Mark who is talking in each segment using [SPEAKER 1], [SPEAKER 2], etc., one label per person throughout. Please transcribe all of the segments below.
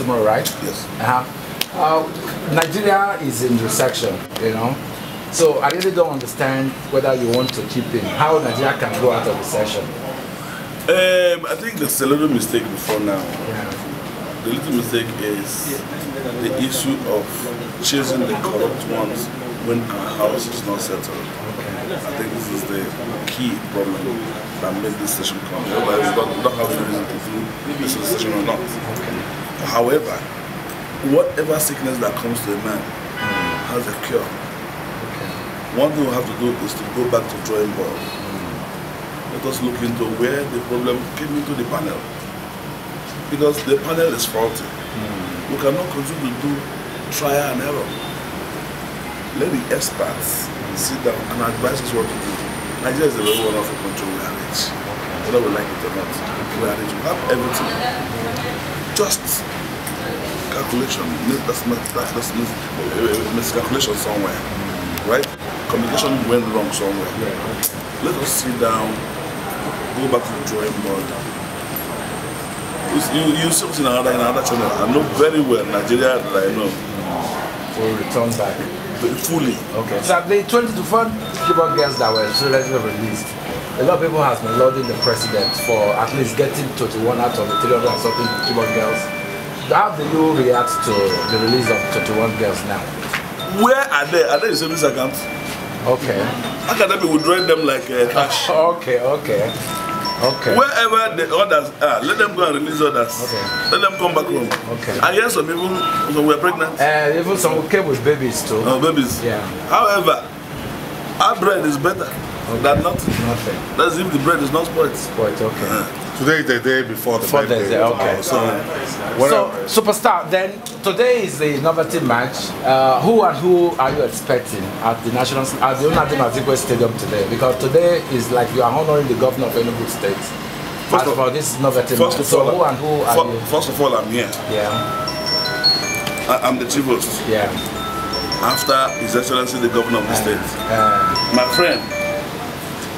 [SPEAKER 1] tomorrow, right? Yes. Uh-huh. Uh, Nigeria is in recession, you know. So I really don't understand whether you want to keep him. How Nigeria can go out of recession?
[SPEAKER 2] Um, I think there's a little mistake before now. Yeah. The little mistake is the issue of choosing the corrupt ones when our house is not settled. Okay. I think this is the key problem that made this session come. Otherwise, we don't have any reason to do this session or not. Okay. However, whatever sickness that comes to a man mm. has a cure. Okay. One thing we have to do is to go back to drawing board. Mm. Let us look into where the problem came into the panel. Because the panel is faulty. Mm. We cannot continue to do trial and error. Let the experts hmm. sit down and advise us what to do. Nigeria is a very wonderful country we are rich. Whether we like it or not, we are rich. We have
[SPEAKER 3] everything
[SPEAKER 2] just calculation, that's, that's, mis miscalculation somewhere, right? Communication went wrong somewhere. Let us sit down, go back to the drawing board. You, you see in another, in another channel. I know very well Nigeria that I know. Will return back. Fully.
[SPEAKER 1] Okay. So they 20 to 4 keyboard girls that were so let's released. a lot of people has been lauding the president for at least getting 21 out of the 300 and something Gibon girls. How do you react to the release of 21 girls now?
[SPEAKER 2] Where are they? Are they in savings account? Okay. How can they be withdrawing them like uh, cash? okay, okay. Okay. Wherever the others are, let them go and release others. Okay. Let them come back home. Okay. I hear some people who were pregnant. Uh, even some
[SPEAKER 1] came with babies too. Oh, babies. Yeah.
[SPEAKER 2] However, our bread is better. Okay. That not nothing. That's if the bread is not spoiled. Spoiled. Okay. Today is the day before the birthday. okay. so, uh, so
[SPEAKER 1] superstar. Then today is the innovative match. Uh, who and who are you expecting at the national at the Unadi Stadium today? Because today is like you are honoring the governor of Enugu State. First of, all, this innovative first match. Of all, so who and who are for, you?
[SPEAKER 2] First of all, I'm here. Yeah. I, I'm the chief host. Yeah. After His Excellency the Governor of the uh, State. Uh, My friend,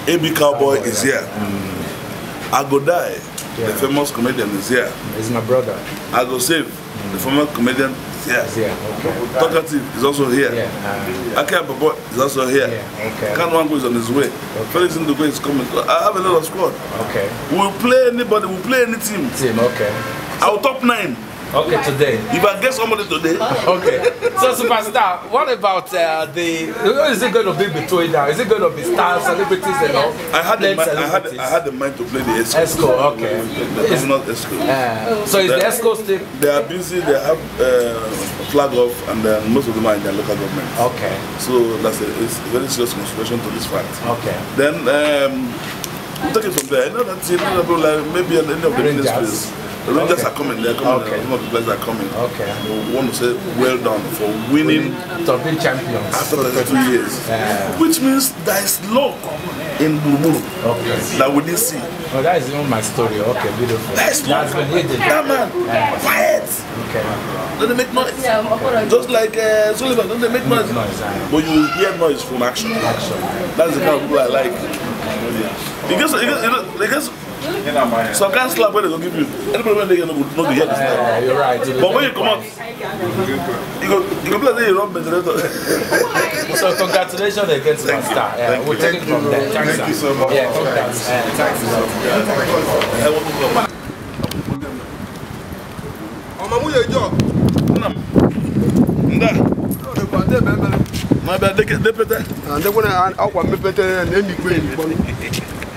[SPEAKER 2] AB Cowboy is here. Mm. Agodai, yeah. the famous comedian, is here. He's my brother. Agosave, mm. the former comedian, is here. He's Okay. Talkative is also here. Yeah. Uh, Akia Babo is also here. Yeah. Okay. Kanwango is on his way. Okay. Felix Ndogo is coming. I have a lot of squad. Okay. We'll play anybody, we'll play any team. Team, okay. Our top nine. Okay, today. You I get somebody today. Okay. so, superstar,
[SPEAKER 1] what about uh, the? Is it
[SPEAKER 2] going to be between now? Is it going to be stars, celebrities, and all? I had the mind, I had I had the mind to play the Esco. Esco, okay. It's not Esco. Uh, so is the Esco still? They are busy. They have uh, flag off, and then most of them are in their local government. Okay. So that's a, it's a very serious consideration to this fact. Okay. Then um, am talking take it from there. I know that's another problem. Maybe in any of the ministries. The Rangers okay. are coming. They're coming. Okay. Some of the players are coming. Okay. We want to say well done for winning. To be champions. After 32 years. Yeah. Which means there is luck in Buru okay. that we didn't see.
[SPEAKER 1] Well, that is even my story. Okay, beautiful. That That's been hidden. That man, yeah. quiet.
[SPEAKER 2] Okay. Don't they make noise? Yeah, I'm Just like uh, Sullivan, don't they make noise? Make noise yeah. But you hear noise from action. Action. That's the kind of people I like. Yeah. Because because it gets, it Some kind of slap where they don't give you. Any problem they get no good, no be here this time. You're right. But when you come out, you go you go play say you run ventilator. so
[SPEAKER 1] congratulations against my star. Yeah, we'll take it from there. Thank you so much. Yeah, congrats. Uh, thanks.
[SPEAKER 4] Ọmọ
[SPEAKER 2] mú yẹ jọ. Nda. N'abịa depete. Ndekwe ah, na ah, akwa mepete eh, na-emikwe emikpọ.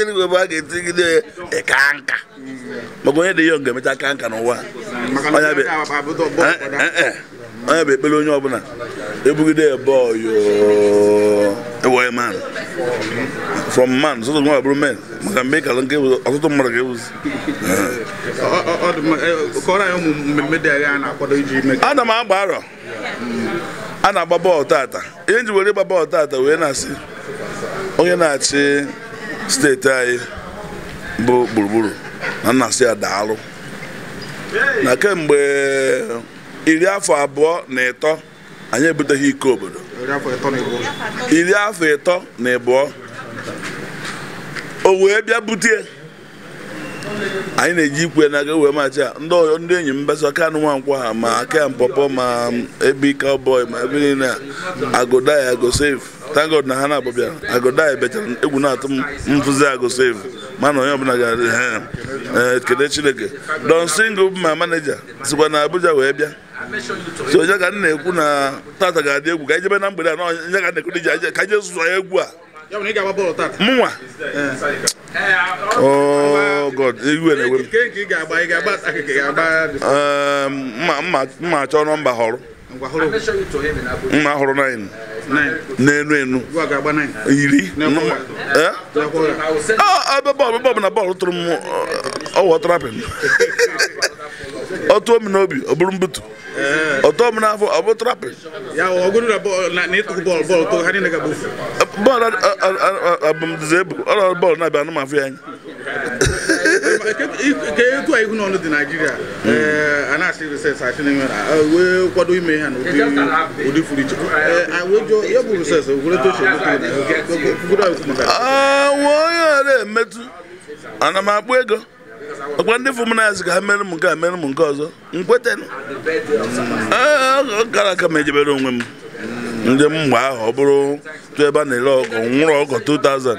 [SPEAKER 2] igwe ga-etigide ya nka maka onye dị ya ga-emecha ka nka n'ụwa onye bụ ekpere onye ọbụla ebugide ya man from man nwa bụrụ men maka mgbe nke ọtụtụ mmadụ ga-ewuzi m agba arọ a na-agba bọọlụ tata ihe were ịgba bọọlụ tata onye na-achị steeti anyị bụ gburugburu na nnasị ya daalụ na kemgbe iri afọ abụọ na ịtọ anyị ebuteghị iko obodo iri afọ ịtọ na ịbụọ o wee bịa butie anyị na-eji ikwe na-aga wee machi a ndị enyi m aka kanụ nwankwọ ha ma aka mpọpọ ma ebe ike ọbọị ma ebe niile agụda ya agosefu thank God na ha na abụbịa agụda ebechara egwu na-atụ m mfụzi save mana onye ọbụla gara ee kede chineke don single ma maneja sikwa na abuja wee bịa so ya ka nna na-ekwu na tata ga-adị egwu ka ijebe na mgbede a na onye ka na-ekwu diji ka je zụọ egwu a mụnwa oh, god iwe na-ewe m ehm, mma achọ nọmba họrọ mma hụrụ naanị n'enu enu iri ebe bọọlụ bọọlụ na bọọlụ tụrụ m ọwụ trapin ọtụọ m n'obi ọ bụrụ mbutu ọtụọ m n'afọ ọ bụ trapin bọọlụ abụmdize ebu ọrụ bọọlụ na-abịa anụ m afọ ya anya Eh, uh, eh, ah, ka ah, etu a ihu n'ọnụ dị naijiria
[SPEAKER 5] a na-asị reses asị n'ime wee kwado ime ha n'ụdị furu iche
[SPEAKER 2] ya bụ reses onye ọra emetụ ana m akpụ ego ọkwa ndị ka ha mere m nke a mere m nke ọzọ nkweta gara aka m ejebere onwe m ndị m mgbe ahụ ọ bụrụ tụ ebe a na-ere ọgọ nwụrụ ọkụ 2000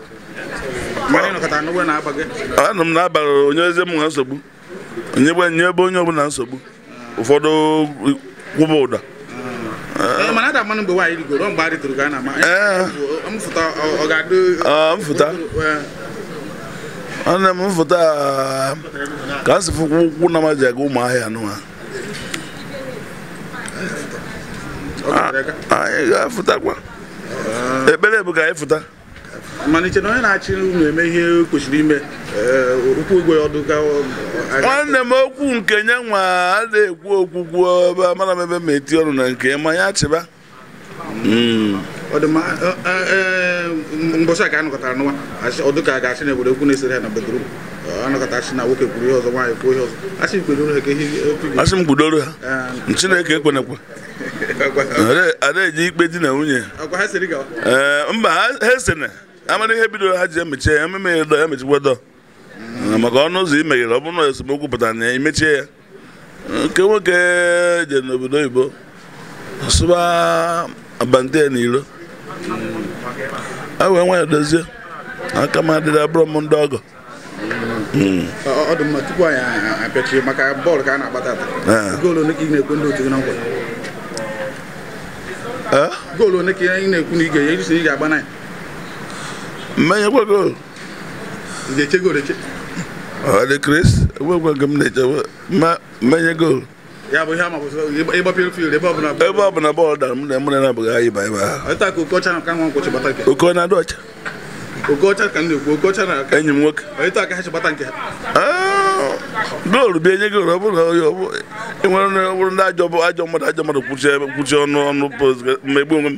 [SPEAKER 5] ana
[SPEAKER 2] m na-abara onye eze m na nsogbu nye ebe onye ọbụla nsogbu ụfọdụ kwụba ụda ana m mfụta ka m sị fụkwa na ma aga ụmụ ahịa anyị ga-afụtakwa ekpere bụ ka anyị fụta malite na onye na-achị unu eme ihe kwesịrị ime ụkwụ eh, ugwe ọdụ ka nwanne m okwu nke ya nwa a na-ekwu okwugwu ebe amara m ebe m eti ọrụ na nke ma ya chịba hmm. e, mbọchị a ka
[SPEAKER 5] anọkọtara n'ụwa Ọdụka ga-achị na obodo ekwu na-esere ha na bedrum anọkọta achị na nwoke kwuru ihe ọzọ nwaanyị kwuo ihe
[SPEAKER 2] ọzọ achị kwedoro ha ka ihe asị m kwudoro ha ah. chineke ekwenekwa ada eji ikpe di na nwunye eh, mba ha esena amara ihe bidoro ha ji emechi ya ememe ya dọ emechikwa dọ ah, maka ọnụ ụzọ imeghere ọ bụrụ na esemokwu pụtara na ya emechie ya ah, nke nwoke je n'obodo oyibo sụba abante ya n'ilo a ah, wee nwa ya dozie aka m adịrị abụrụ m ndị ọgọ hmm.
[SPEAKER 5] ọ dị mma tupu anyị apịachie maka bọọlụ ka a na-agbata goolu ole ka ị na-ekwu otu gị na nkwa
[SPEAKER 2] eh? goolu ole ka ị na-ekwu na ị ga-agba na ya mmanya kwego ọ dị kris ekwekwe m na-echebe mmanya gol ebe ọ bụla bọọlụ dara m na mre na-abụghị anyị ba ebe ahụ oke na-adị ọcha enyi m nwoke goolu nye goolu ọ bụrụ na onye enwere onye ọ bụrụ ndị ajọ mmadụ ajọ mmadụ kwụchi ọnụ ọnụ mgbe onwe m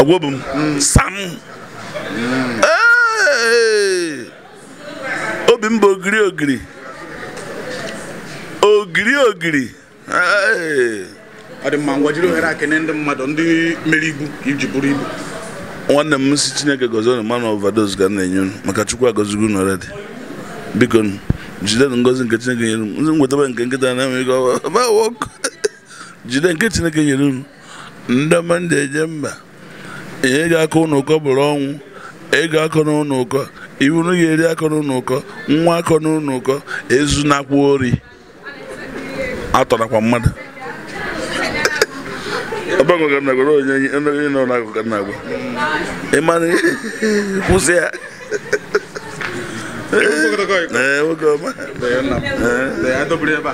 [SPEAKER 2] ogwobu m sam obi m bụ ogiri ogiri ogiri ogiri ọ dị mma ngwa jiri ohere akene ndị mmadụ ndị mere ibu iji bụrụ ibu nwanne m si chineke gozi unu mana overdose ga na-enye unu maka chukwu agozigo unu already biko jide ngozi nke chineke nyere m nwetaba nke nkịta na-enweghị ọwa jide nke chineke nyere unu ndị mmadụ eje mba ị ga-akọ ụnụ bụrụ ọnwụ ego ga-akọ n'ụnụ ụkọ ibunu ga-eri akọ n'ụnụ ụkọ nwa akọ n'ụnụ ụkọ ezunakwa ori atọrakwa mmadụ kwụsị ya ee we're good man. adọbiri ebe a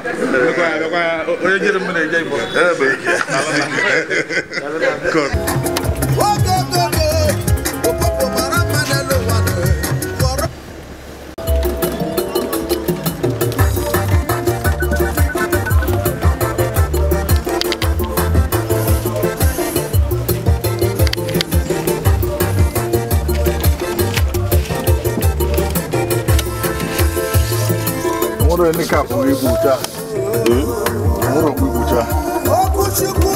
[SPEAKER 2] onye jiri m na-eje igbo. ebe a.
[SPEAKER 6] friend ni cap we buta. Hmm? Mo ro buta. Okuchukwu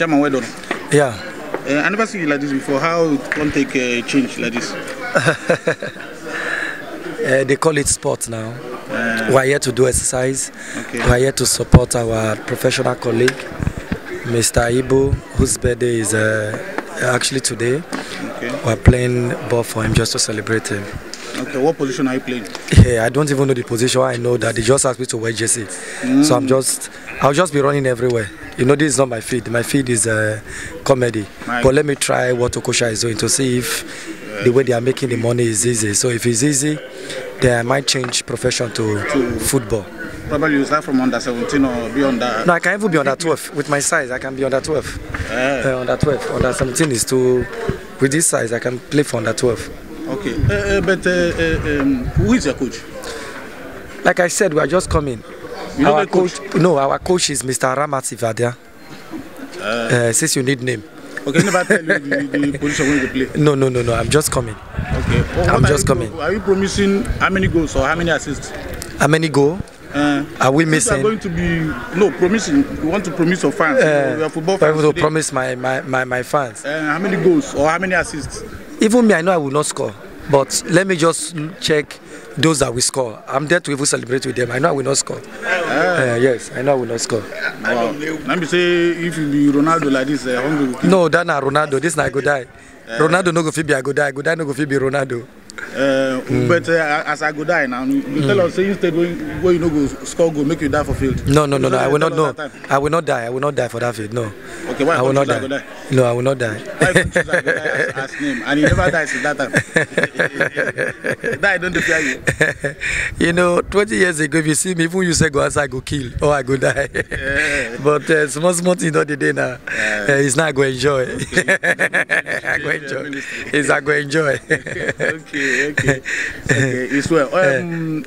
[SPEAKER 5] Chairman, well done. Yeah. Uh, I never seen you like this before. How it can take a uh, change like this?
[SPEAKER 7] uh, they call it sport now. Uh, we are here to do exercise. Okay. We are here to support our professional colleague, Mr. Ibu, whose birthday is uh, actually today. Okay. We are playing ball for him just to celebrate him. Okay, what position are you playing? Yeah, I don't even know the position. I know that they just asked me to wear jersey, mm. so I'm just, I'll just be running everywhere. you know this is not my feed. my feed is uh, comedy my but let me try what okosha is doing to see if the way they are making the money is easy so if it's easy then i might change profession to, to football
[SPEAKER 5] probably you start from under 17 or be under no
[SPEAKER 7] i can even be under 12 with my size i can be under 12 yeah. uh, under 12 under 17 is too with this size i can play for under 12 okay uh, uh, but uh, uh, um, who is your coach like i said we are just coming You our coach, coach? No, our coach is Mr. Ramat Sivadia. Uh, uh, since you need name. Okay, never tell you the, position when play. No, no, no, no. I'm just coming. Okay. Oh,
[SPEAKER 5] well, I'm just coming. Are you promising how many goals or how many assists?
[SPEAKER 7] How many goals? Uh, are we missing? We Are going
[SPEAKER 5] to be no
[SPEAKER 7] promising. We want to promise our fans? Uh, you are football fans. I want to promise my my my, my fans. Uh, how many goals or how many assists? Even me, I know I will not score. But let me just check those that we score. I'm there to even celebrate with them. I know I will not score. Yeah. Uh, eh, yes, I know I will not score. Wow. Let me say, if you be Ronaldo like this, uh, hungry. No, that na Ronaldo. This na I go die. Uh, Ronaldo no go fit be I go die. I go no go fit be Ronaldo. Uh, mm. But uh, as
[SPEAKER 5] I go die now, you mm. tell us say you stayed where, where you know go score go make you die for field.
[SPEAKER 7] No, no, no, no. I will not. No, I will not die. I will not die for that field. No. Okay, why I will not die. die. No, I will not die. Why you choose I as, as name? And he never dies since that time. die don't fear you. you know, 20 years ago, if you see me, even you say go outside, I go kill or I go die. Yeah. but uh, small small thing not the day now. Yeah. Uh, it's not I go enjoy. Okay. I go enjoy. It's I go enjoy. okay. okay, okay, It's
[SPEAKER 5] well. Eh. Um,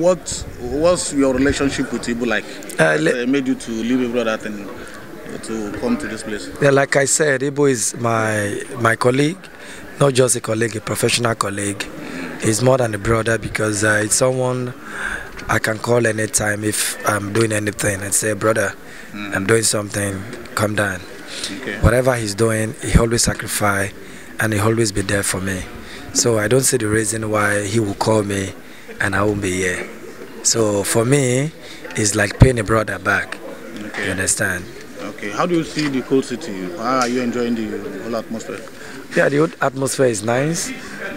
[SPEAKER 5] what was your relationship with Ibu like? Uh, that, made you to leave Ibu that and to come to this place?
[SPEAKER 7] Yeah, like I said, Ibu is my my colleague, not just a colleague, a professional colleague. He's more than a brother because uh, it's someone I can call anytime if I'm doing anything and say, brother, mm. I'm doing something, come down. Okay. Whatever he's doing, he always sacrifice and he always be there for me. So I don't see the reason why he will call me and I won't be here. So for me, it's like paying a brother back. Okay. You understand?
[SPEAKER 5] Okay. How do you see the cold city? How are you enjoying the whole atmosphere?
[SPEAKER 7] Yeah, the atmosphere is nice,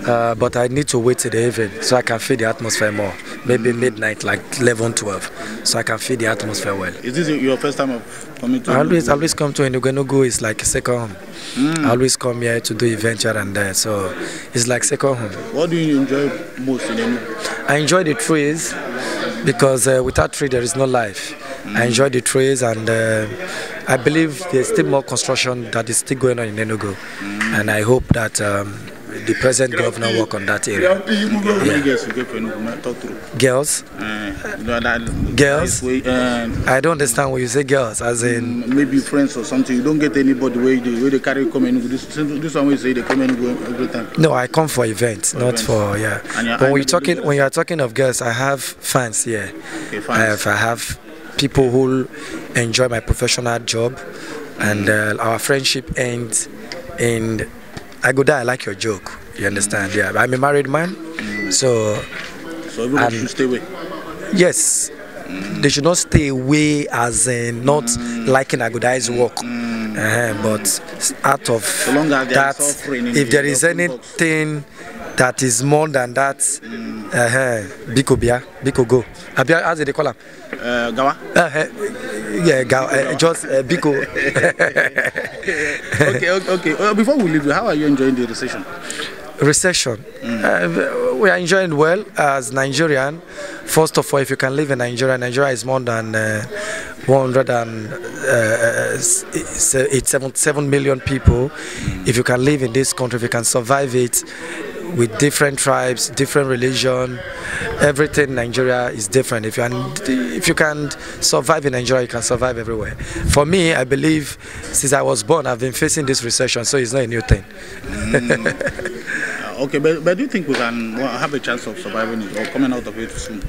[SPEAKER 7] uh, but I need to wait till the evening so I can feel the atmosphere more maybe midnight, like 11, 12, so I can feel the atmosphere well. Is this your first time of
[SPEAKER 5] coming to? I always, always
[SPEAKER 7] come to Enugu. It's like second home.
[SPEAKER 5] Mm. I always
[SPEAKER 7] come here to do events here and there, so it's like second home.
[SPEAKER 5] What do you enjoy most in
[SPEAKER 7] Enugu? I enjoy the trees because uh, without trees there is no life. Mm. I enjoy the trees and uh, I believe there's still more construction that is still going on in Enugu, mm. and I hope that. Um, the present governor work on that area. Yeah. Girls? Uh, girls? Uh, I don't understand when you say girls, as mm, in... Maybe
[SPEAKER 5] friends or something. You don't get anybody where they, where they carry come and this, this one will say they come and go every time.
[SPEAKER 7] No, I come for events, for not events. for, yeah. But when you're, talking, when you're talking of girls, I have fans here. Okay, fans. I have, I have people who enjoy my professional job and mm. uh, our friendship ends in I go die. I like your joke. You understand? Yeah, I'm a married man, so.
[SPEAKER 5] So everyone should stay away.
[SPEAKER 7] Yes, they should not stay away as in not mm. liking Agudai's work. Uh, but out of so that, if there is anything box. that is more than that, uh, Biko Bia, Biko Go. Abia, as they call him. Uh, Gawa? Uh, eh, yeah, Gawa. Eh, just uh, Biko. okay, okay. okay. Uh, before we leave, how are you enjoying the recession? recession. Mm. Uh, we are enjoying well as Nigerian. First of all, if you can live in Nigeria, Nigeria is more than uh, 177 people. If you can live in this country, if you can survive it, with different tribes, different religion. Everything in Nigeria is different. If you, can, if you can survive in Nigeria, you can survive everywhere. For me, I believe since I was born, I've been facing this recession, so it's not a new thing. Mm.
[SPEAKER 5] okay, but, but do you think we can have a chance of surviving it or coming out of it soon?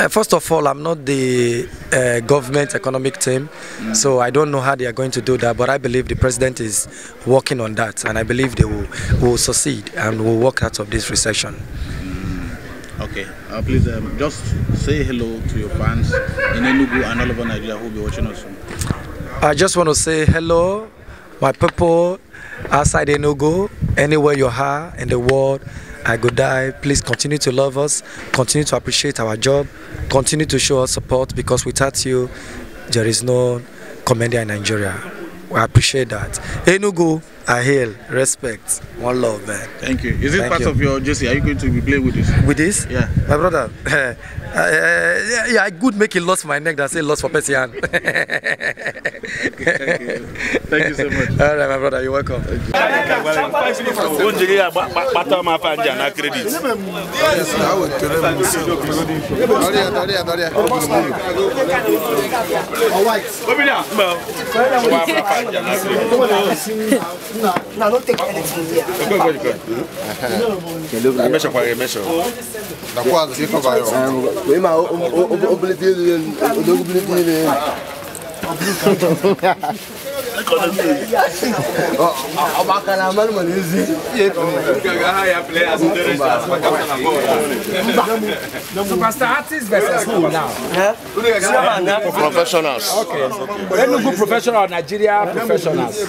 [SPEAKER 7] Uh, first of all, I'm not the uh, government economic team, mm. so I don't know how they are going to do that. But I believe the president is working on that, and I believe they will, will succeed and will work out of this recession.
[SPEAKER 5] Mm. Okay, uh, please um, just say hello to your fans in Enugu and all over Nigeria who will be watching us soon.
[SPEAKER 7] I just want to say hello, my people outside Enugu, anywhere you are in the world. I Go Die. Please continue to love us, continue to appreciate our job, continue to show us support because without you, there is no commander in Nigeria. We appreciate that. Enugu. Hey, I hail, respect, one love, man. Thank you. Is it Thank part you. of your jersey? Are you going to be playing with this? With this? Yeah. My brother, uh, uh, yeah, yeah, I could make it lost my neck that say lost for Persian. Thank you. Thank you so much. All right, my brother, you're welcome. Yes,
[SPEAKER 3] I não não tem take anything here.
[SPEAKER 4] Go, go, go. Measure for measure. Na quadra, você vai. Oi, mas
[SPEAKER 8] o
[SPEAKER 3] Makalamani mwenezi.
[SPEAKER 1] Superstar artists versus who now? Professionals. Okay. Enugu professional Nigeria professionals.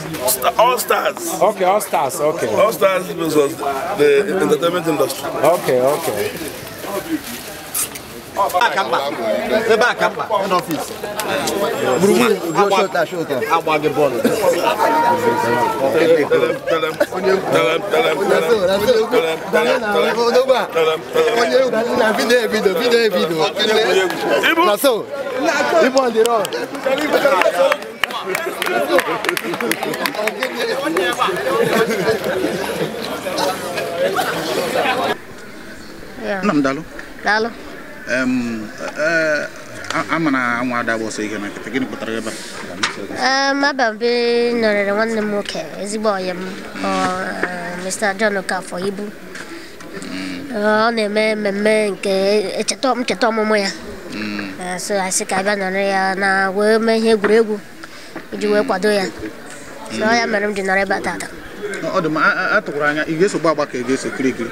[SPEAKER 1] All stars. Okay, all stars.
[SPEAKER 2] Okay. All stars versus the entertainment industry.
[SPEAKER 1] Okay, okay.
[SPEAKER 3] ebe a ka
[SPEAKER 5] mba agba gị E, e, amara anwa ada gba ọsọ ihe na nkịta gịnị pụtara
[SPEAKER 8] ebe a Mababe nọrịrị nwanne m nwoke ezigbo ọyị m e, Mr. John Okafọ ibu hmm. ọ na-eme mmemme nke echeta ncheta ọmụmụ ya hmm. so asị ka abịa nọrị ya na wee mee ihe egwuregwu iji wee kwado ya so ọ ya hmm. mere m ji nọrọ ebe a tata
[SPEAKER 5] ọ dị m atụkwara anya ị ga-eso gba agba ka ị ga-eso kirikiri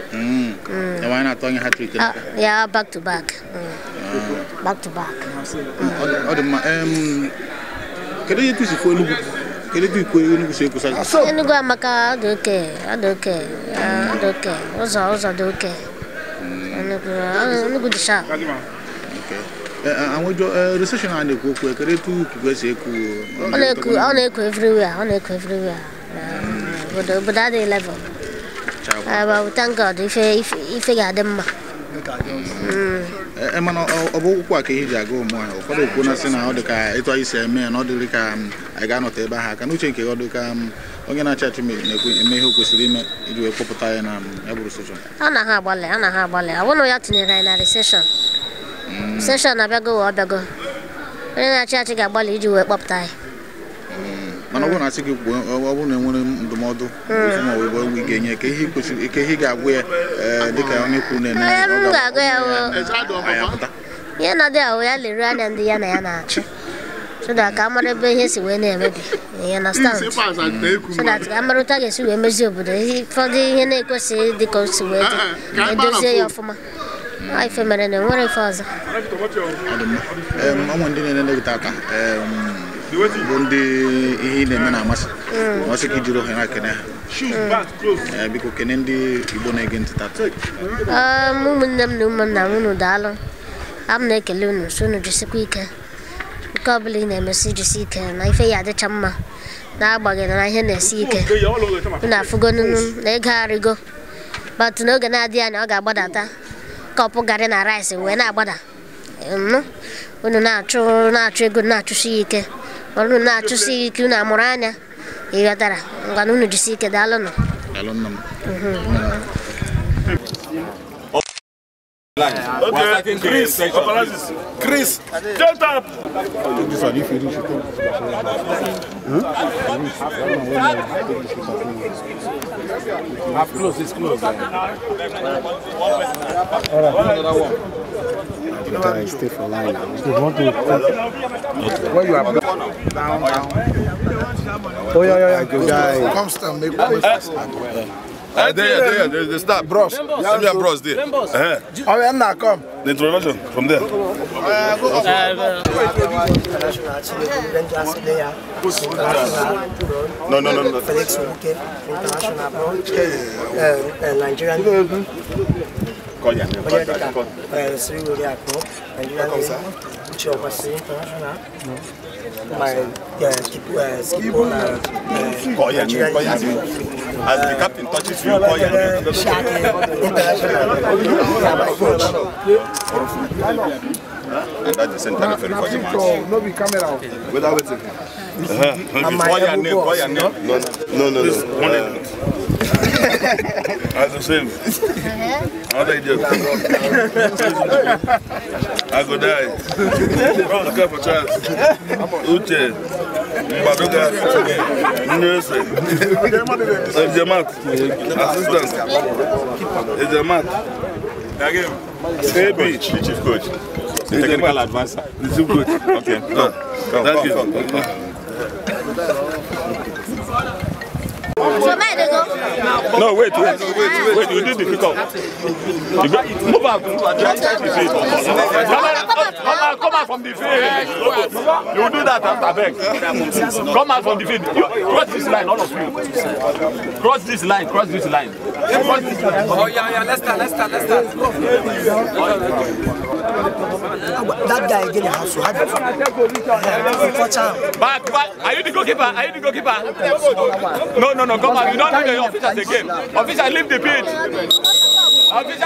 [SPEAKER 5] Mm. Mm. The Uh,
[SPEAKER 8] yeah, back to back. Mm.
[SPEAKER 5] Uh. Back to back. Mm. Um, can you use for Enugu? Can you use for Enugu so you can
[SPEAKER 8] Enugu amaka do okay, do okay, do okay. Oza oza do okay.
[SPEAKER 5] Enugu
[SPEAKER 8] Enugu disha. Okay.
[SPEAKER 5] àwọn ìjọ recession and èkó kò ẹkẹrẹ tó kùkú ẹsẹ èkó. ọ na-ekù ọ na-ekù
[SPEAKER 8] everywhere ọ na-ekù everywhere. but that day level.
[SPEAKER 5] bụ
[SPEAKER 8] tankad ife ga-adị mma
[SPEAKER 5] mana ọ bụ ụkwụ ji aga ụmụ ha ụfọdụ okwu na sị na ọ dị ka ịtụ anyị si eme na ọ dịrị ka anyị ga-anọta ebe aka n'uche nke ọ dị ka onye na-achị achị na-eme ihe kwesịrị ime iji wee kpọpụta ya na
[SPEAKER 8] a na ha agbalị a na ha agbalị awụnụ ya anyị na abịago onye na-achị achị ga-agbalị iji wee kpọpụta ya.
[SPEAKER 5] mana ọ bụrụ na asị gị kwuo ọ bụrụ na enwere ndụmọdụ ị hmm. ga-enye ka ihe ihe ga-agwa ya eh, dịka onye kwuru na ya. ya m
[SPEAKER 8] ga-agụ ihe nọdụ ahụ ya lere anya ndị ya na ya na-achụ so that ka amara ebe ihe si wee na-emebi ihe na stand so that amarụta ga-esi wee mezie obodo ụfọdụ ihe na-ekwesịghị dịka o si wee dị ah, ah, edozie ya ọfụma ife mere na enwere ife ọzọ
[SPEAKER 5] ọnwa ndị na-ele aka. bụ ndị ihe ị na-eme na-amasị ọsị mm. ka ijiri ohere akene ha biko kene ndị Igbo na-ege ntị tata
[SPEAKER 8] um, ụmụnne m na ụmụnna m unu daalụ abụ na-ekele unu si unu jisikwa ike nke ọbụla ị na-emesi jisi ike na ife ya adịcha mma na agbaghị na ihe na-esi ike unu afụgo na ego arịgo batụ n'oge na-adịghị anya ọ ga-agbadata kọpụ garị na rice wee na-agbada unu na-achụ na-achụ ego na-achụsi ike wala na chusi kiuna morana igatara nganu nu chusi ke dalono dalono mm-hmm.
[SPEAKER 2] Okay, Chris, Chris, shut up! This
[SPEAKER 5] one, if you do, Half close, it's close. All
[SPEAKER 1] right,
[SPEAKER 2] another one.
[SPEAKER 5] But I stay for line now. You want
[SPEAKER 4] to... Okay.
[SPEAKER 2] Where you are? Down, down. Oh, yeah, yeah, yeah. Go,
[SPEAKER 1] guy. Come
[SPEAKER 4] make one.
[SPEAKER 2] Uh, there, there, there, the stop. Bros. Send me a bros there. Uh -huh.
[SPEAKER 4] Oh, yeah, now come.
[SPEAKER 2] The introduction from there. Uh, go, go,
[SPEAKER 3] go. No, no, no, no. Felix Wuke, international abroad, uh,
[SPEAKER 8] uh, Nigerian. Cogliane, guardate, guardate. Eh, se io li vai è lì la c'è
[SPEAKER 7] un passo internazionale, ma é tipo, è tipo la... Cogliane, cogliane.
[SPEAKER 3] As the captain touches you, Cogliane. Internazionale. and that is entirely very for him. No, be camera. Without waiting.
[SPEAKER 8] Uh -huh.
[SPEAKER 3] Call your name, call your name. No,
[SPEAKER 8] no, no. no, no.
[SPEAKER 2] Uh, I can see me. I think just. I go die. Wrong the cup uh-huh. of chance. Uche. Mbadoga. Nurse. It's your mat. Assistant. It's your mat. Again.
[SPEAKER 3] Baby. Chief coach. The technical advisor. The chief coach. Okay. Go. Go. That's it.
[SPEAKER 2] No, wait, wait, wait, wait, you did the kick off. Move out! move out try to the field. Come out,
[SPEAKER 1] come out from the field.
[SPEAKER 2] You do that after back. Come out from the field. You, cross this line, all of you.
[SPEAKER 1] Cross this line, cross this line. Cross this line. Oh, yeah, yeah, let's start, let's start, let's start. That guy again has to have
[SPEAKER 2] it. Back, back. Are you the goalkeeper? Are you the goalkeeper?
[SPEAKER 3] No, no, no. Come on. You don't need
[SPEAKER 2] the officers again. Officer, leave the pitch.
[SPEAKER 3] I'll be Je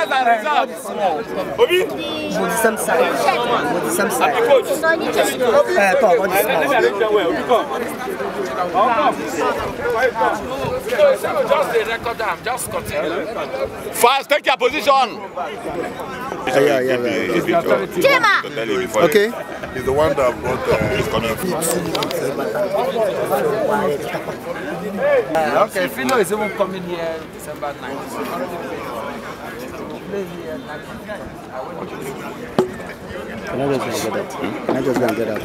[SPEAKER 1] Just the record continue. take your position.
[SPEAKER 6] Okay. He's the one that brought the... Uh,
[SPEAKER 2] He's Okay, Fino
[SPEAKER 1] is even coming here December Can I just go
[SPEAKER 4] and get Can I just get that?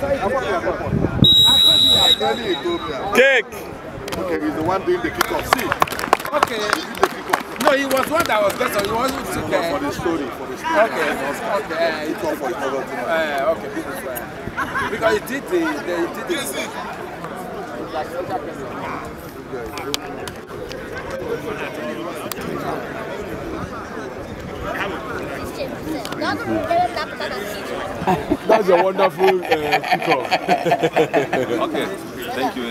[SPEAKER 4] Cake! Okay, he's the
[SPEAKER 6] one doing the kickoff. See? Okay. No, he was one that was better. He wasn't sick. Uh, for the story, for the
[SPEAKER 1] story. Okay. Okay. He called for another thing. Uh, okay, because, he did the, the, he did
[SPEAKER 3] the kickoff.
[SPEAKER 8] Like, That's
[SPEAKER 3] a wonderful uh, kickoff. okay, thank you,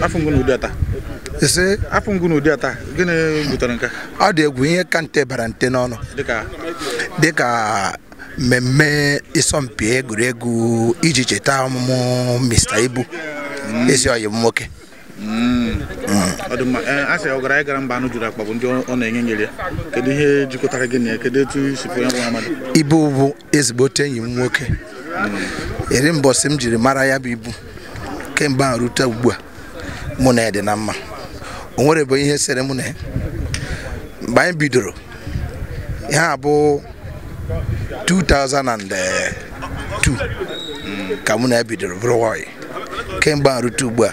[SPEAKER 4] Afọ gịnị butere nke Ọ dị egwu ihe ka nte bara nte n'ọnụ. Dịka mmemme ịsọmpi egwuregwu iji cheta ọmụmụ Mr. Ibu mm. ezi ọyị m nwoke. Mm.
[SPEAKER 5] Eh, asị ọ gara ịgara mba anụ juru akpagbu ndị ọ na-enye nyere ya kedu ihe jikọtara gị na ya kedu etu isi pụ ya bụ amadụ
[SPEAKER 4] ibu bụ ezigbote enyi m nwoke eri mbọsị m jiri mara ya bụ ibu kemgbe a rute ugbu a mụ na ya dị na mma o nwere bụ ihe sere mụ na ya mgbe anyị bidoro ihe a bụ 2002 ka mụ na ya bidoro bụrụ nwanyị kemgbe a rute ugbu a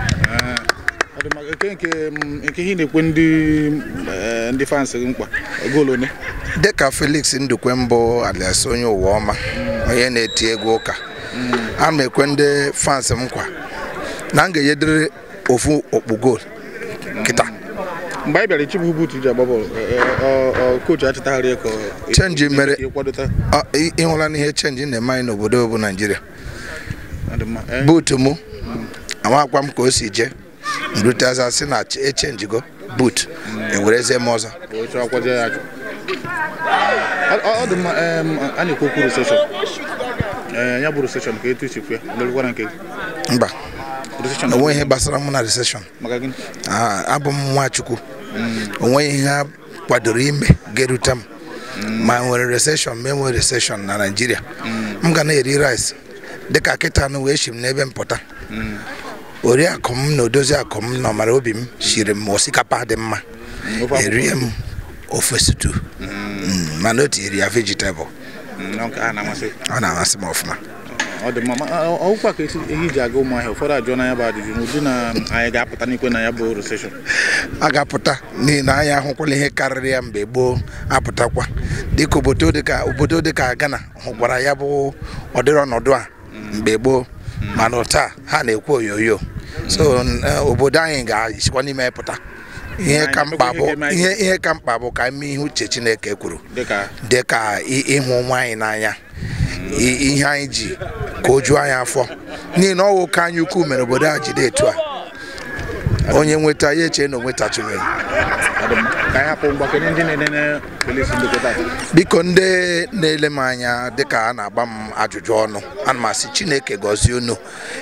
[SPEAKER 5] nke mm,
[SPEAKER 4] ihe eh, ndị fans gị mkpa dịka Felix Ndukwe mbụ alias onye ụwa ọma onye na-eti ego ụka a ma ekwe ndị fans m nkwa na m ga-enyedịrị ofu okpu goolu kịta
[SPEAKER 5] mm. mgbe anyị bịara ichibu ji agba bọọlụ kochi eh, eh, achịtagharị ka chenji
[SPEAKER 4] mere ịhụla n'ihe chenji na-eme anyị n'obodo bụ Naijiria buutu mụ mm. amakwa m ka o si jee rute aza sị na echenjigo but ewereze m ọzọ
[SPEAKER 5] ọ dị mma a na-ekwu okwu Ee,
[SPEAKER 4] ya bụ reseshọn ka etu ichekwa ya nke mba onwe ihe gbasara mụ na reseshọn abụ m nwachukwu onwe ihe ha kwadoro ime ga-erute m ma nwere reseshọn ma enwere reseshọn na naijiria m ga na-eri rice dịka kịta anụ wee shi m n'ebe m oriakụ m na odozi akụ m na ọmara obi m siri m osikapa dị mma erie m ofe sutu hmm. hmm, mana o tinyere ya vegetable hmm, ọ na-amasị m ọfụma
[SPEAKER 5] ọ dị mma ọkwa ka ehi ji aga ụmụ ahịa ụfọdụ ajụọ na ya bụ ajụjụ n'ụdị na anyị ga-apụta n'ikwe na ya bụ recession
[SPEAKER 4] a ga-apụta n'ihi na anyị ahụkwala ihe karịrị ya mgbe gboo apụtakwa dịka obodo dịka obodo dịka Ghana hụkwara ya bụ ọdịrị ọnọdụ a mgbe gboo Mm. mana taa ha na-ekwu onyonyo so e, obodo anyị ga achịkwa n'ime pụta
[SPEAKER 8] ihe ka mkpa bụ
[SPEAKER 4] ihe ka mkpa bụ ka ime ihe uche Chineke kwuru dịka ịhụ nwaanyị n'anya ihe anyị ji ka o juo anyị afọ n'ihi na ọwụ ka anyị ukwu mere obodo a jide etu a onye nweta ya eche na onwetachiri biko ndị na-ele m anya dịka a na-agba m ajụjụ ọnụ ana m asị chineke gọzie unu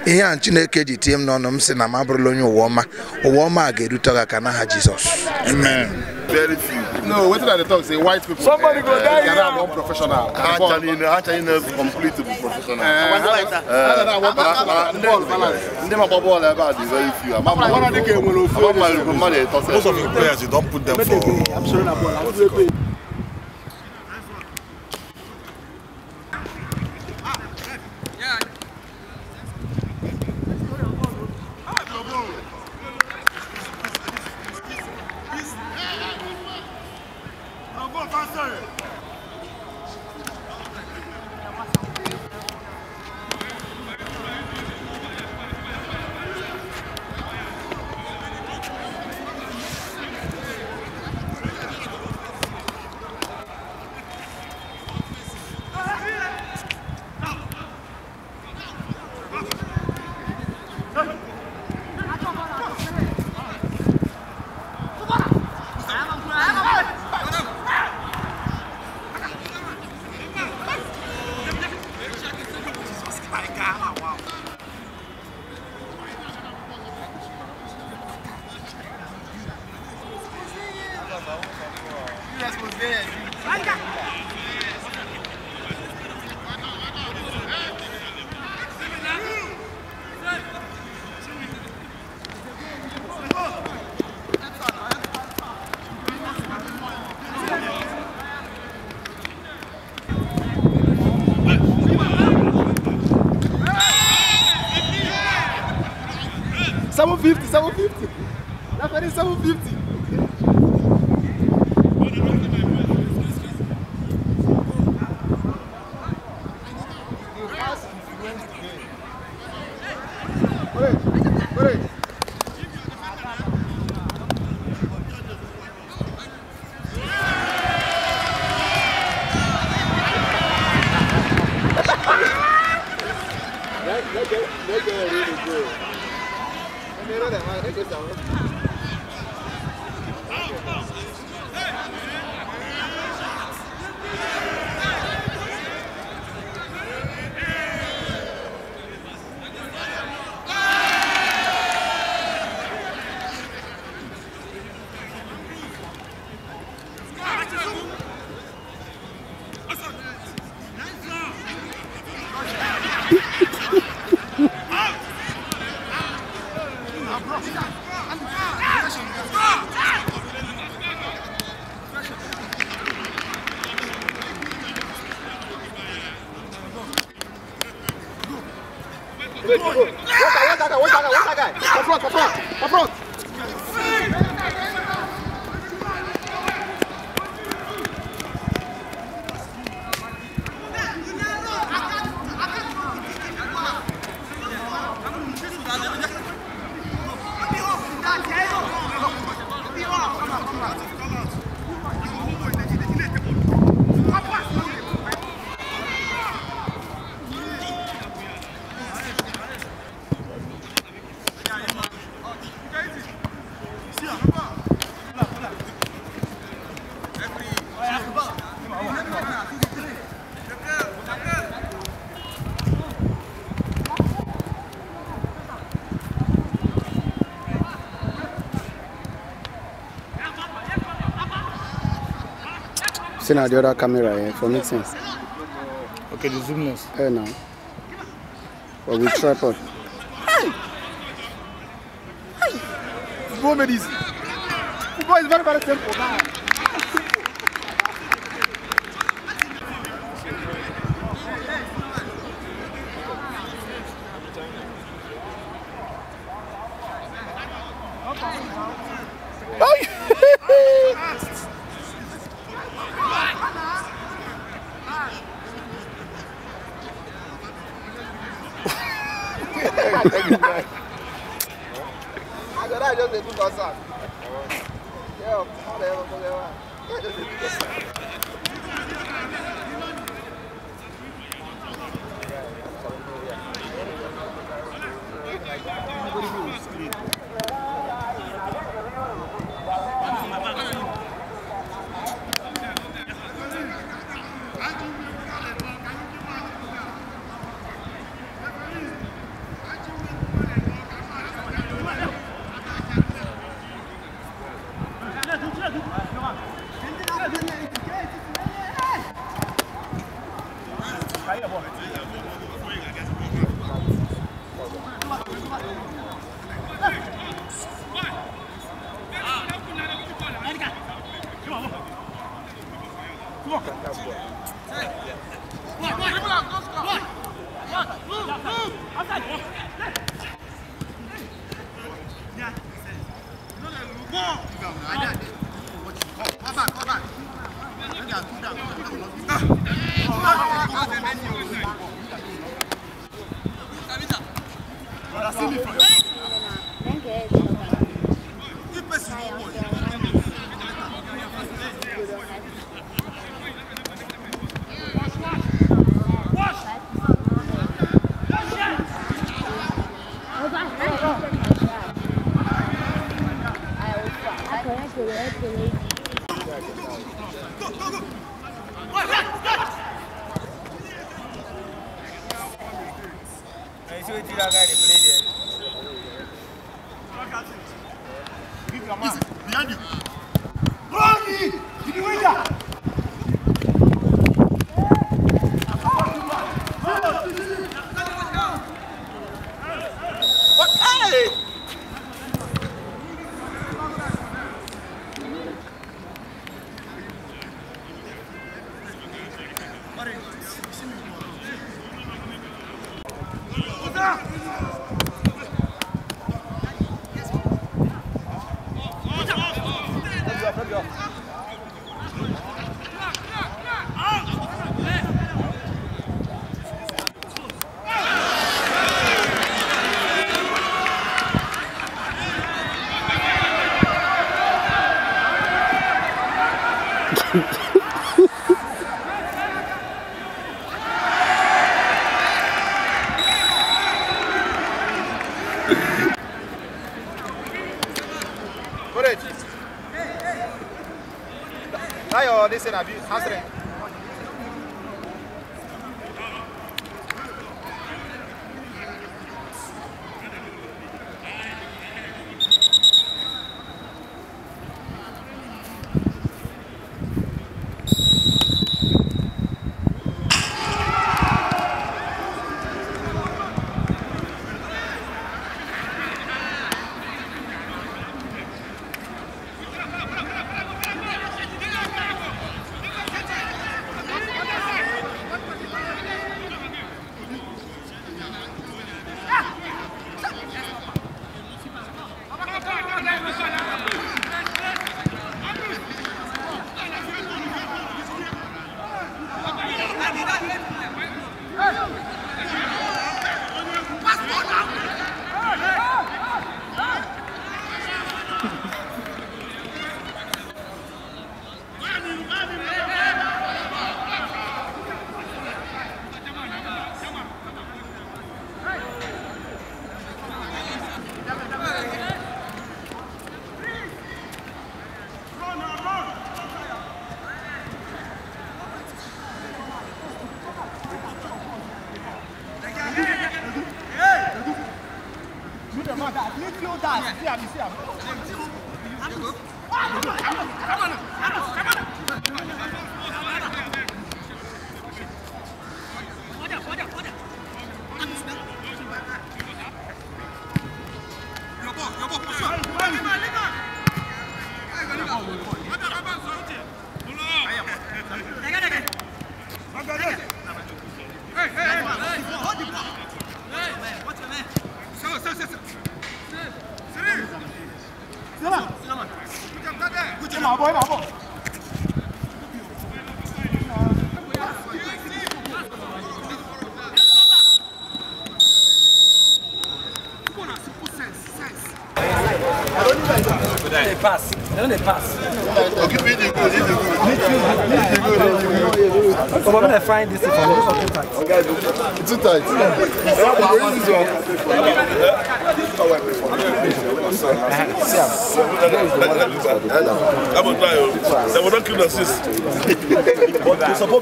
[SPEAKER 4] ihe a chineke ji tie m n'ọnụ m sị na m abụrụla onye ụwa ọma ụwa ọma a ga-erute ga aka n'aha
[SPEAKER 3] jizọs very few. No, wait till they talk. Say white people. Somebody go eh, die here. Ghana one professional. Actually, ah, actually, no, completely professional. Eh, eh, ah,
[SPEAKER 6] ah, Ndema ball about the very few. Mama, one of the game will Most of the players, you don't put them for. Absolutely.
[SPEAKER 4] See now the other camera eh, for meetings. Okay, the zoom lens. Eh, now. But with tripod.
[SPEAKER 3] Hey! Hey! It's more medicine. Football is very, very simple now.
[SPEAKER 4] será visto, rastreio.
[SPEAKER 8] Mesela
[SPEAKER 7] personne ne Occupez gonna find this information too tight. Too tight.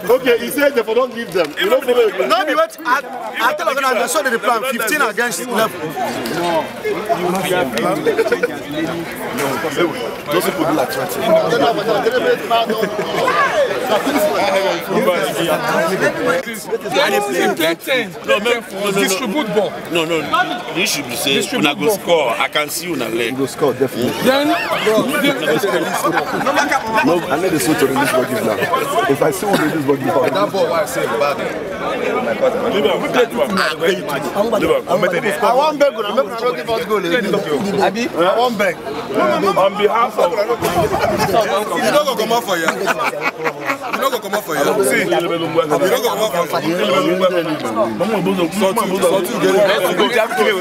[SPEAKER 2] Okay, he said they will not give them. You know, no,
[SPEAKER 4] we went at, at the plan 15 against 11.
[SPEAKER 6] No, you have No, those people do no, no,
[SPEAKER 3] Distribute ball. No, no,
[SPEAKER 2] You should be saying, when I go score, I can see you in leg. You go score, definitely. Then, no, I need the switch to release what now. If I see what release what you now. That ball, I say bad. I want
[SPEAKER 4] beg, make we give us
[SPEAKER 2] goal. Abi, I want beg. On behalf of, you don't go come out for you. You don't go come out for you. See, you don't go come out for you. Sọtú, sọtú, gẹ̀rẹ́. Kawo, kawo,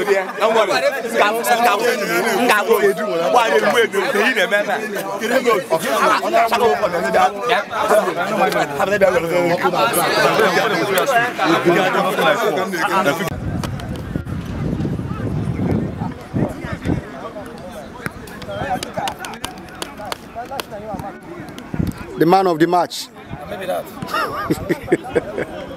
[SPEAKER 2] kawo, The
[SPEAKER 4] man of the match.
[SPEAKER 7] Maybe that.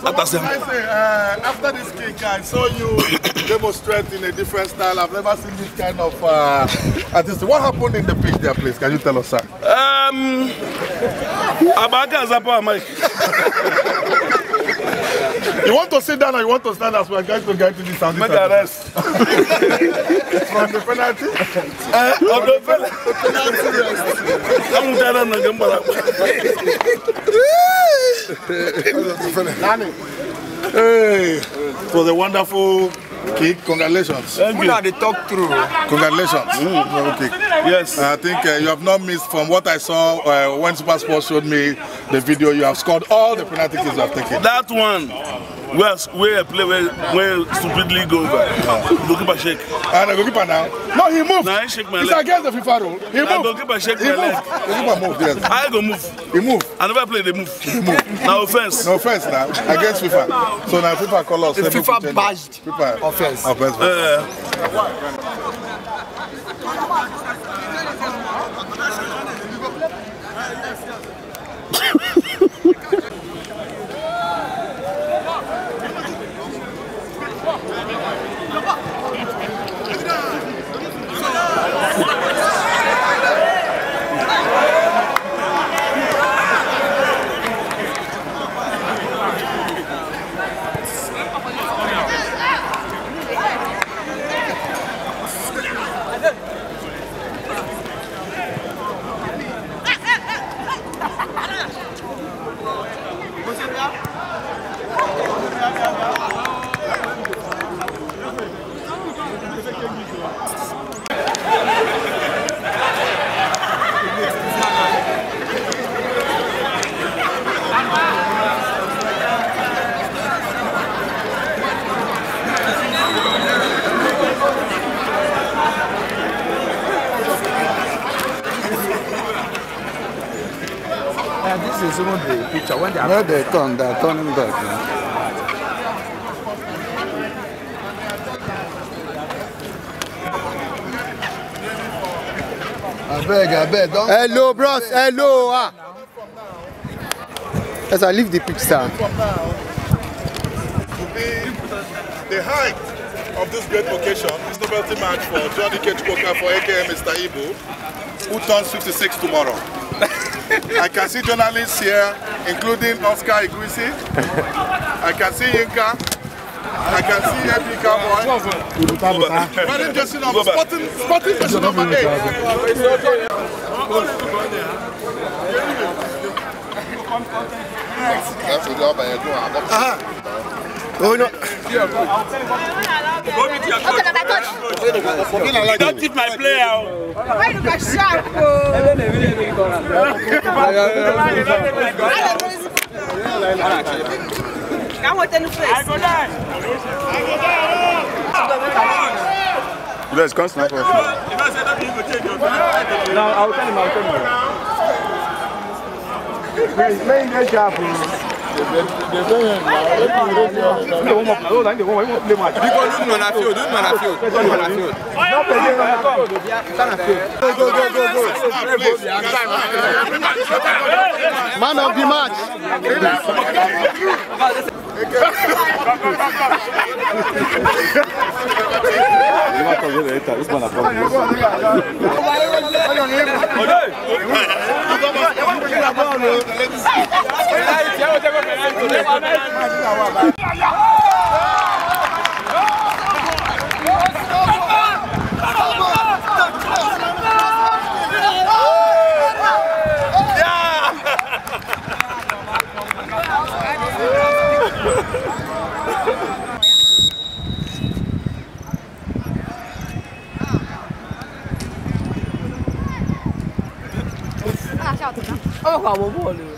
[SPEAKER 2] So
[SPEAKER 6] what did I say? Uh, after this kick, I saw you demonstrate in a different style. I've never seen this kind of uh, artist. What happened in the pitch there, please? Can you tell us, sir?
[SPEAKER 2] Um, Abaka Zapa, Mike. You want to sit down or you want to stand as we are going to get to this and Make a rest. From the penalty? Uh, eh, of the penalty. Come down on the gamble. Hey,
[SPEAKER 6] it was a wonderful Okay, congratulations. Thank you. the talk through. Congratulations. Mm. Okay. Yes. I think uh, you have not missed from what I saw uh, when Super Sports showed
[SPEAKER 2] me the video. You have scored all the penalty kicks you have taken. That one where where I play where where stupidly go over. Goalkeeper shake. And ah, the goalkeeper now. No, he moved. Now he shake my leg. It's
[SPEAKER 6] against the FIFA rule. He moved.
[SPEAKER 2] Goalkeeper shake he my leg. Goalkeeper move. Yes. I go move. He move. I never play They move. He move. Now offense. No offense now against FIFA. So now FIFA call us. If FIFA bashed.
[SPEAKER 6] FIFA offense. Offense. Uh,
[SPEAKER 1] No, they turn,
[SPEAKER 4] they are turning back. Man. abeg hello bros hello ah. yes i leave the pitch the
[SPEAKER 6] height of this great occasion is novelty match for johnny kechikoka for aka mr ibo who turns 56 tomorrow. i can see journalists here including Oscar Iguisi. I can see Inka. I can see every cowboy. Wearing jersey number, sporting, sporting jersey number 8.
[SPEAKER 8] Oh no! Okay,
[SPEAKER 3] coach. Don't tip my
[SPEAKER 1] player. Why you got sharp? Oh? Fica botando preço.
[SPEAKER 3] You guys can't snap off. No, I'll tell him, I'll tell him. Please, let him get sharp. Because you know na field, you know na field, you know na field. Go,
[SPEAKER 1] go, go, go,
[SPEAKER 3] go. Man of the match.
[SPEAKER 2] Ima to vjede, eta, uzma na pomoć. Evo te go penajcu, nema
[SPEAKER 3] najcu.
[SPEAKER 1] 大笑什么？二话不破了。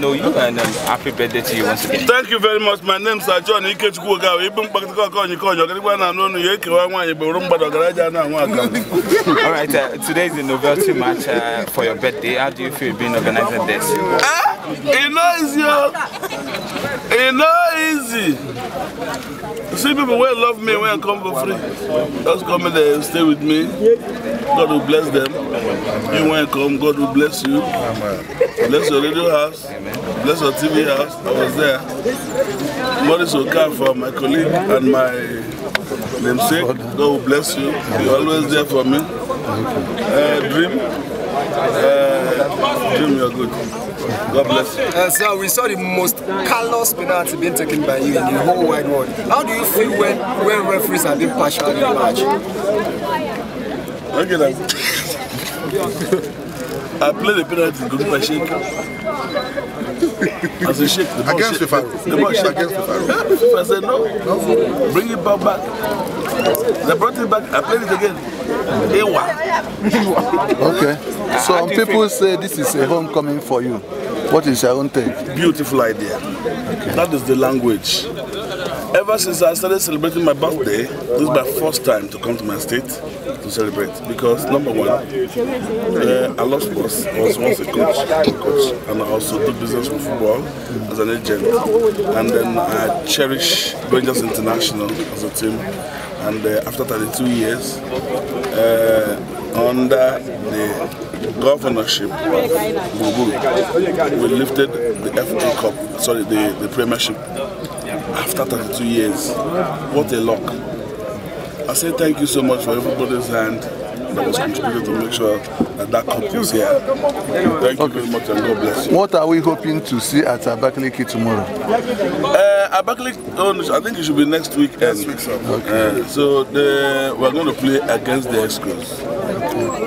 [SPEAKER 2] know
[SPEAKER 3] you and um, happy
[SPEAKER 2] birthday to you once again. Thank you very much. My name is John Ikechukwu Ogawa. call you call. onye kọnyọ kẹrìkwa na anụ ọnụ ya ekewa nwaanyị gboro mgbada ọgaraja na anwa aka.
[SPEAKER 5] All right, uh, today is the novelty match uh, for your birthday. How do you feel being organized this? Ah,
[SPEAKER 2] eh? it's not easy. Oh. It's not easy. See people wey love me when I come for free. Just come in there, stay with me. God will bless them. You when come, God will bless you. Bless your radio house. Bless your TV house. I was there. come Okafor, my colleague and my namesake. God will bless you. You're always there for me.
[SPEAKER 3] Uh, dream. Uh, dream, you're good. God bless you. Uh, sir, we saw the most callous penalty being taken by you in the whole wide world. How do you feel when, when referees have been partial in the match?
[SPEAKER 2] Okay, then. I played the penalty good by shake? As a Sheikh, the ball against shake, Fifaro. The ball shake. against Fifaro. Yeah, FIFA said no. no. Bring it back back. They brought it back. I played it again. Ewa. okay. So um, people say this is a homecoming for you. What is your own take? Beautiful idea. Okay. That is the language. Ever since I started celebrating my birthday, this is my first time to come to my state to celebrate because number one,
[SPEAKER 8] uh, I love sports. I was once a coach, coach,
[SPEAKER 2] and I also do business with football as an agent.
[SPEAKER 8] And then I
[SPEAKER 2] cherish Rangers International as a team. And uh, after 32 years, uh, under the governorship of Buruburu, we lifted the FA Cup, sorry, the, the Premiership after 32 years. What a luck. I say thank you so much for everybody's hand. to make sure that that cup here. Thank you very much and God bless you.
[SPEAKER 4] What are we hoping to see at Abakaliki tomorrow?
[SPEAKER 2] Uh, Abakaliki, oh, I think it should be next weekend. Next week, sir. Uh, okay. Uh, so the, we're going to play against the Excros.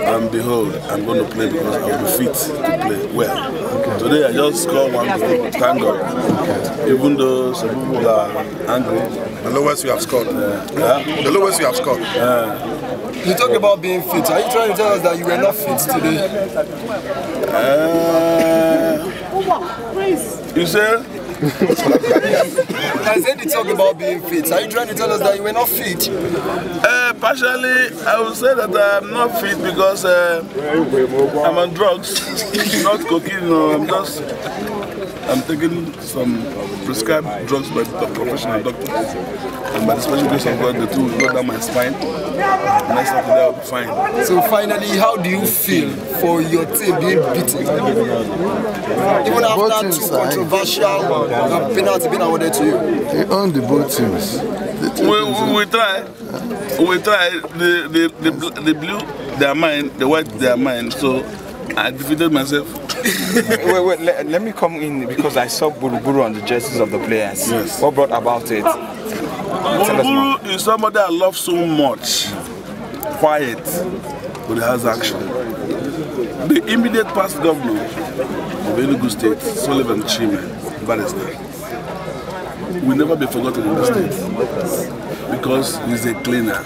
[SPEAKER 2] And behold, I'm going to play because I'll be fit to play well. Okay. Today I just scored one goal, thank God. Okay. Even though some people are angry. The lowest you have scored. yeah. Uh, the lowest you have scored. Uh, You talk about being fit. Are you trying to tell us that you were not fit today? Uh, you said? I said you talk about being fit. Are you trying to tell us that you were not fit? Uh, partially, I would say that I'm not fit because uh, I'm on drugs, not cocaine. No, I'm just I'm taking some uh, prescribed drugs by the professional doctor. And by the special grace of God, the two will go down my spine. And I fine.
[SPEAKER 4] So finally, how do you feel for your team being beaten? Even after two controversial uh, penalties being awarded to you? They own
[SPEAKER 2] the both teams. We, we, we try. We try. The, the, the, the blue, their mind, the white, their mind. So I defeated myself. wait, wait, let, let me come in because I saw Buruburu on the jerseys of the players. Yes. What brought about it? Buruburu oh. is somebody I love so much. Quiet, but he has action. The immediate past governor of Enugu State, Sullivan Chime, Barrister, will never be forgotten in this state because he's a cleaner.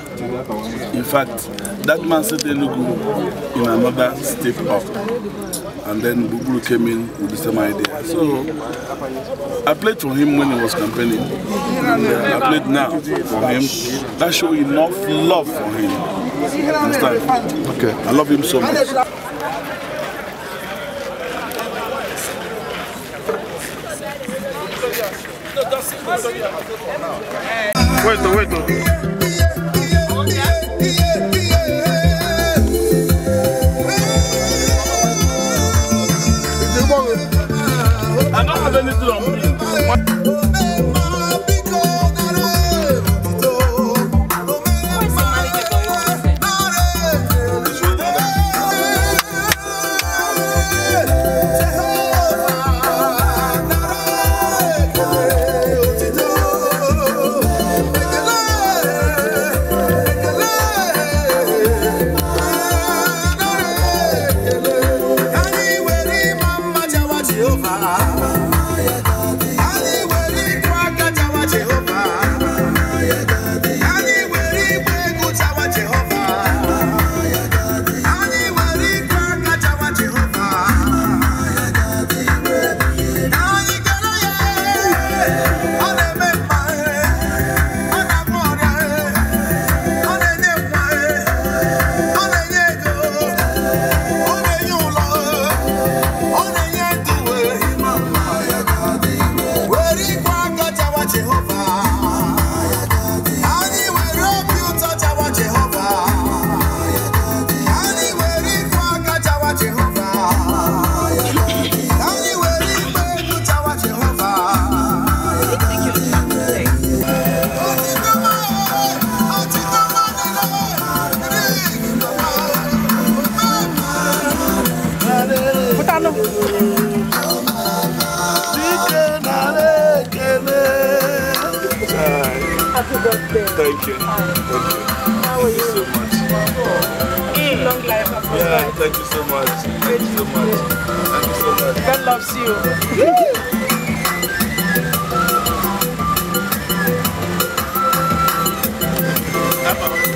[SPEAKER 2] In fact, that man said Elugu in another step up. And then Bubulu came in with the same idea. So I played for him when he was campaigning. And uh, I played now for him. That showed enough love for him. Understand? Okay. I love him so
[SPEAKER 6] much.
[SPEAKER 3] Vuelto, vuelto.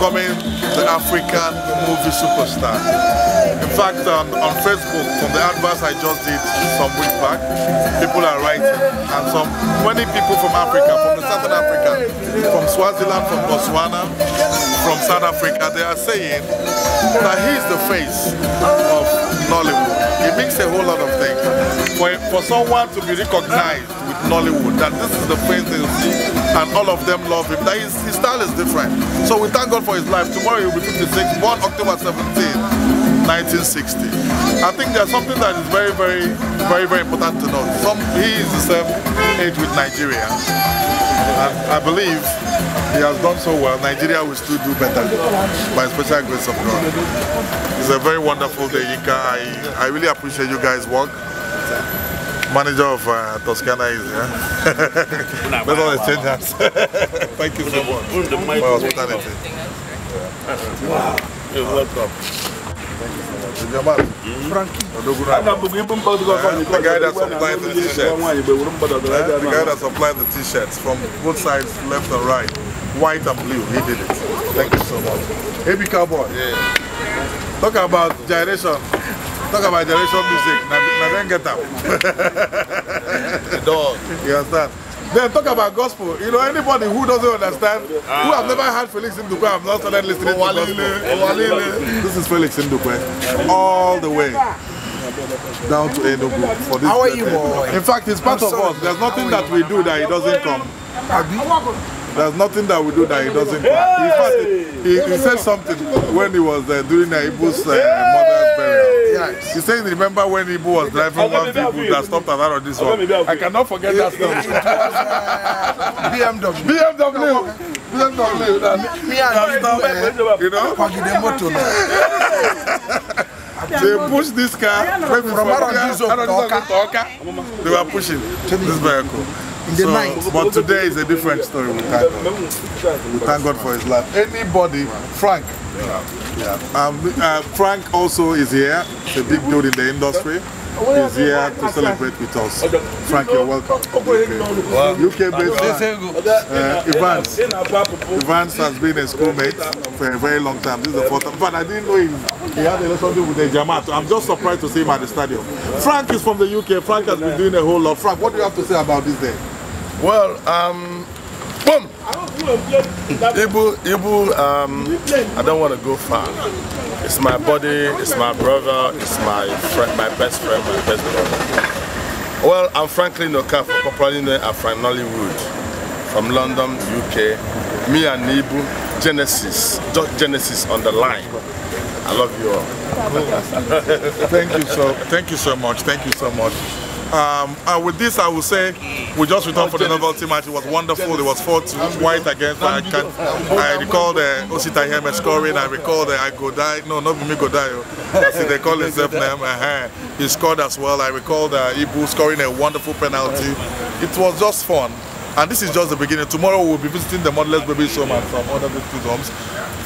[SPEAKER 6] becoming the African movie superstar. In fact, um, on Facebook, from the adverts I just did some weeks back, people are writing, and some many people from Africa, from the Southern Africa, from Swaziland, from Botswana, from South Africa, they are saying that he's the face of Nollywood. It makes a whole lot of things. For, for someone to be recognized with Nollywood, that this is the face they see and all of them love him. That his, his style is different. So we thank God for his life. Tomorrow he'll be 56, born October 17. 1960. I think there's something that is very, very, very, very important to know. Some, he is the same age with Nigeria. And I believe he has done so well. Nigeria will still do better by special grace of God. It's a very wonderful day, Yinka. I, I really appreciate you guys' work manager of uh, Toscana is here. That's all exchange hands. Thank you so much for hospitality.
[SPEAKER 3] Wow. You're welcome.
[SPEAKER 2] Thank you so much. The guy that supplied the t-shirts. The guy that
[SPEAKER 6] supplied the t-shirts from both sides, left and right, white and blue, he did it. Thank you so much. Happy Cowboy. Yeah. Talk about gyration. Talk about generation music. Now then get up. the dog. You understand? Then talk about gospel. You know, anybody who doesn't understand, ah. who have never heard Felix Ndukwe, I've not started listening oh, to gospel. this is Felix Ndukwe. All the way down to Enugu for this. How are you, boy? In fact, it's part of us. There's nothing that we do that he doesn't come. There's nothing that we do that he doesn't come. In fact, he, he said something when he was uh, doing Naibu's uh, mother's burial. Yes. He's saying, remember when Ibu was driving one vehicle that stopped at that or this one? I cannot forget that story. BMW. BMW. BMW. BMW. You know? they pushed this car from Arondizok to Oka. They were pushing this vehicle. in the so, night. But today is a different story. We thank God. We
[SPEAKER 3] thank God for his life.
[SPEAKER 6] Anybody, Frank. Yeah. Um, uh, Frank also is here. He's a big dude in the industry. He's here to celebrate with us. Frank, you're welcome. UK, UK based uh, Evans. Evans has been a schoolmate for a very long time. This is the fourth time. But I didn't know he, he had a relationship with the Jamaat. I'm just surprised to see him at the stadium. Frank is from the UK. Frank has been doing a whole lot. Frank, what do you have to say about this day?
[SPEAKER 3] Well, um, boom. Ibu, Ibu, um, I don't want to go far. It's my body, it's my brother, it's my friend, my best friend, my best brother. Well, I'm Franklin Okafor, popularly known as Frank Nollywood, from London, UK. Me and Ibu, Genesis, just Genesis on the line. I love you all.
[SPEAKER 6] thank you so, thank you so much, thank you so much. Um, and with this, I will say we just returned oh, for the novelty match. It was wonderful. It was 4 2 white against. I can I recall the Osita Heme scoring. I recall the I Godai. No, not Bumi Godai. See, oh. they call himself name. Uh -huh. He scored as well. I recall the Ibu scoring a wonderful penalty. It was just fun. And this is just the beginning. Tomorrow we'll be visiting the Modelless Baby Showman from other victims' homes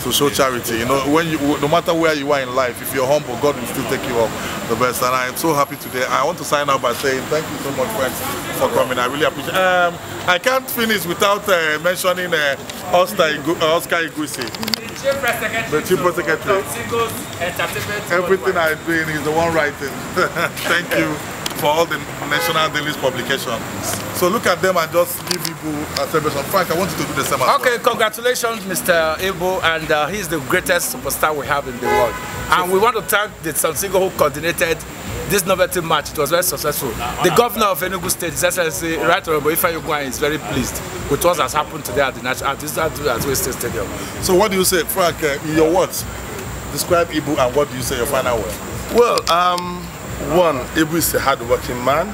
[SPEAKER 6] to show charity. You know, when you, no matter where you are in life, if you're humble, God will still take you up the best. And I'm so happy today. I want to sign out by saying thank you so much, friends, for coming. I really appreciate. Um, I can't finish without uh, mentioning uh, Oscar Igu uh, Oscar Igusi.
[SPEAKER 1] The chief press secretary.
[SPEAKER 6] Everything I'm doing is the one writing. thank you for all the national dailies publication. So look at them and just give Igbo a celebration. Frank, I want you to do the same. Okay,
[SPEAKER 1] well. congratulations, Mr. Igbo, and uh, he's the greatest superstar we have in the world. And we want to thank the Sansigo who coordinated this novelty match. It was very successful. The governor of Enugu State, His Excellency Right Honorable Ifeanyi Ugwan, is very pleased with what has happened today at the National at this at West
[SPEAKER 6] State Stadium. So what do you say, Frank? Uh, in your words, describe Ibu and what do you say your final
[SPEAKER 3] word? Well, um, One, Ibu is a hardworking man.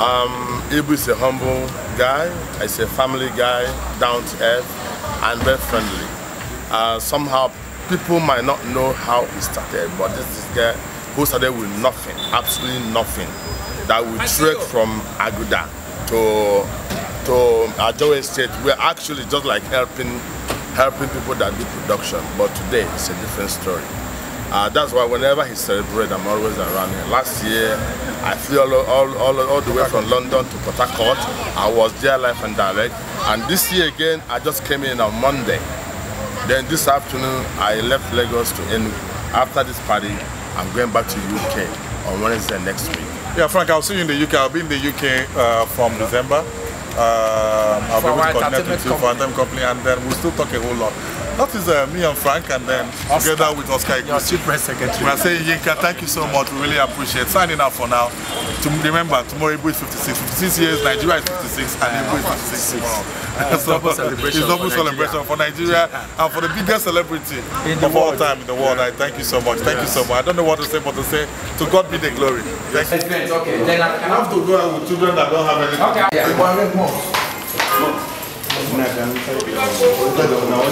[SPEAKER 3] Um, Ibu is a humble guy. He's a family guy, down to earth, and very friendly. Uh, somehow, people might not know how he started, but this is guy who started with nothing, absolutely nothing, that we trek from Aguda to to Ajowe State. We're actually just like helping helping people that do production, but today it's a different story. Uh, that's why whenever he celebrates, I'm always around here. Last year, I flew all, all, all, all the way from London to Port Harcourt. I was there live and direct. And this year again, I just came in on Monday. Then this afternoon, I left Lagos to end. After this party, I'm going back to UK on Wednesday next week.
[SPEAKER 6] Yeah, Frank, I'll see you in the UK. I'll be in the UK uh, from yeah. December. Uh, I'll for be able to connect with you company. for Anthem Company, and then we'll still talk a whole lot. That is uh, me and Frank, and then Oscar, together with Oscar Iguchi. Your Chief Press Secretary. We are saying, Yinka, thank you so much. We really appreciate Signing up for now. To remember, tomorrow Ibu is 56. 56 years, Nigeria is 56, and Ibu is 56 tomorrow. so, double celebration it's double for celebration for Nigeria and for the biggest celebrity in the of world. all time in the world. Yeah. I thank you so much. Thank yes. you so much. I don't know what to say, but to say, to God be the glory. Thank yes. you. Okay. Then I can have to go out with children
[SPEAKER 8] that don't have anything. Okay. Yeah. One more. No.